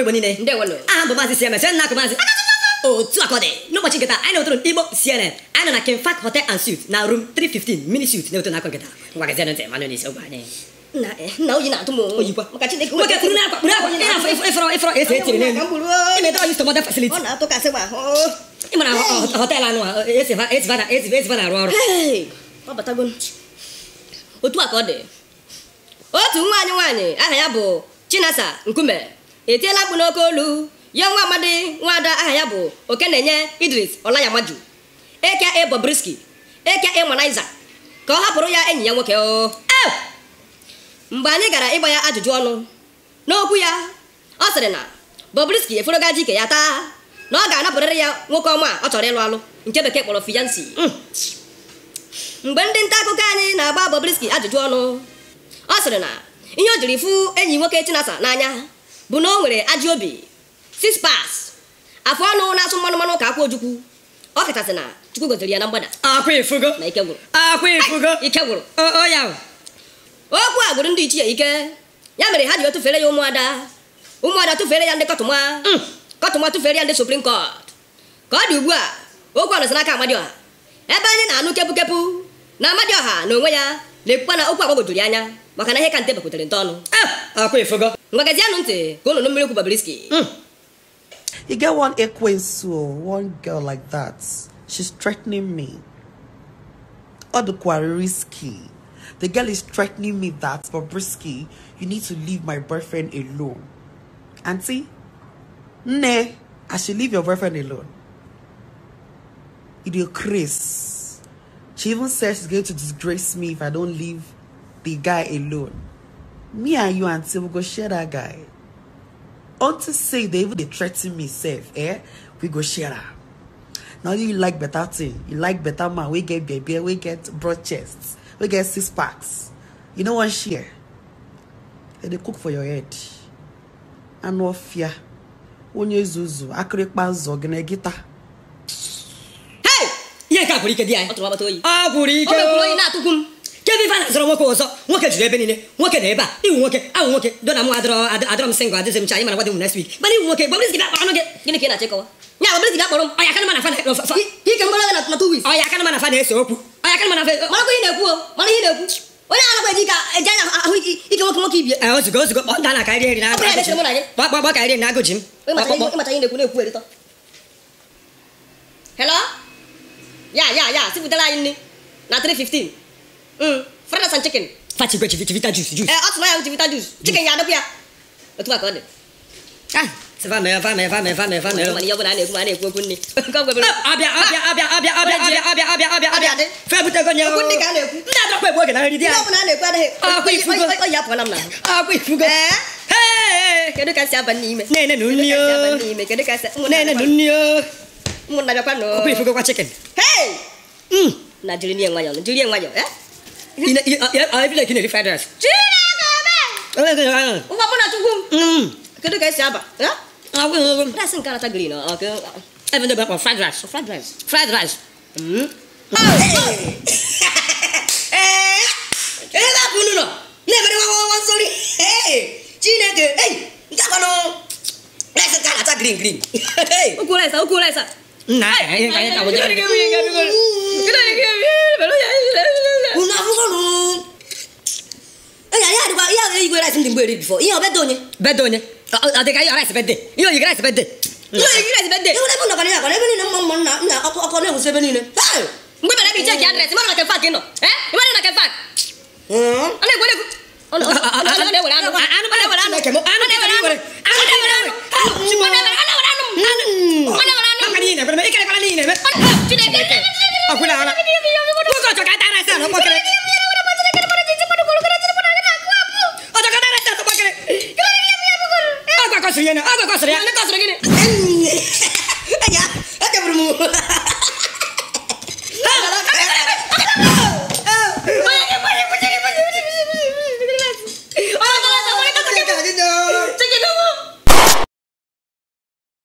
igbo niile aha bụ maazị cms nna akụ maazị otu akọdị n'ụbọchị nkịta anyị na-etoro igbo cnn anyị nọ na kenfak hotel and suit na room 315 mini suit na-eto n'akọ nkịta ngwa gazie ntị manụ n'isi ogbe anyị e, nna oyi na-atụ m oyikwa maka chineke nwoke kuru na akwa kpuru akwa ị afọ ịfọrọ ịfọrọ ese etiri n'elu imede oyi stọmọda fasiliti ọ na-atụkasị gba ị mara họteelụ anụ a esiva na-arụ ọrụ otu aka ọ dị otu nwaanyị nwaanyị aha ya bụ chinasa nkume etiela mkpu n'oke olu ya nwa amadi ada aha ya bụ oke na-enye idris ọlayamaju eke e bobriski eke e manaiza ka ọ hapụrụ ya enyi ya nwoke o e! mgbe anyị gara ịgba ya ajụjụ ọnụ n'okwu ya ọ sịrị na bobriski eforogaji ike ya taa na ọ ga-anapụrịrị ya nwoke ọma ọ chọrọ ịlụ alụ nke bekee kpọrọ fiyansi mm. mgbe ndị nta akụkọ anyị na-agba bobriski ajụjụ ọnụ ọ sịrị na ihe o jiri fụ enyi nwoke chinasa n'anya bụ na o nwere ajị obi six afọ ọnụ na-asụ mmanụ mmanụ ka akwa ojukwu ọ kachasị na chukwu goziri ya na mgbada na ike ike okwu a gwụrụ ndị ichie ike ya mere ha ji tụfere ya ụmụada ụmụada tụfere ya ndị kọtụma mm. kọtụma tụfere ya ndị suprim kọt ka ọ dị ugbu a okwu a nọsi amadi ọha ebe anyị na-anụ kepụ na ọha na onwe ya na-ekwukwa na okwu agbagwojuru anya maka na ihe ka nte bakwutere ọnụ eh! akwefugo ah, magazi anụ ntị ka unu mmiri kwuba You get one ekwensu, one girl like that. She's threatening me. Or the risky. The girl is threatening me that, Bobrisky, you need to leave my boyfriend alone. Auntie, ne, I should leave your boyfriend alone. Idiot will craze. She even says she's going to disgrace me if I don't leave the guy alone. me and you and we go share that guy unto say they even dey threaten me safe, eh we go share am Now you like better thing you like better man We get bebe We get broad chests. We get six packs you know what share dem dey cook for your head no anụ ọfịa You zuzu akịrịkpa nzọ gị na gịta ihe nke a gwụrụ ike you anyị ọ gwụrụ ike o kedu ife a nwoke nwoke ebe niile nwoke na ebe a iwu nwoke awụ nwoke dona m adọrọ m singl m cha m next week mana iwu nwoke gbabụrụ gị akpọrọ gịnị ka na-achịkọwa ya gị akpọrọ m ọya mana fa na two ọya mana fa na-ese okwu ọya mana fa mara na-ekwu mara ihe na-ekwu onye anakwa eji ka eji anya ahụ ike nwoke nwoke kpọ a na-akarị na gbagba karị na m hello ya ya ya sipụtara anyị Mm. fried and chicken fati gwe chivita juice juice eh atụma ya chivita juice mm. chicken ya ah. ah, oh. adọpụ ah, ya otu a ka ọ dị abịa abịa abịa abịa abịa Ina oh, mm. ya ai bila kini federals. Jina ka ba. Eh ka. Uwa bona tunggu. Hmm. Kada kai siapa? Ya? Aku rasin kala tagli no. Oke. Eh benda berapa fried rice? Fried rice. Fried rice. Hmm. Eh. Eh la bunu no. Ne bere wa wa sorry. Eh. Jina ke. Eh. Nta kono. Rasin kala ta green green. Hey. Ukulesa ukulesa. Nah, ini kayaknya kamu jadi. Kita dikit. seen the mgbere before. Ihe obede onye. Bede onye. Adịka ihe rice bede. Ihe oyi rice bede. Ihe oyi rice bede. Ewu ebe nọkwa n'akwa ebe niile mma mma nna nna ọkọ na-ewusi ebe niile. Mgbe mere bi check address, ịmara na kefa ka ị nọ. Eh? Ịmara na kefa. Ọ na-egwere egwu. Ọ na-ewere anụ. Anụ na-ewere anụ. Anụ na-ewere anụ. Anụ na-ewere anụ. Chukwu na-ewere anụ. Ọ na-ewere anụ. Ọ na-ewere anụ. Maka na ị na-ekpere m, ị kerekwala na ị na-eme. Chineke. Ọkwụla ara. kasar yana aga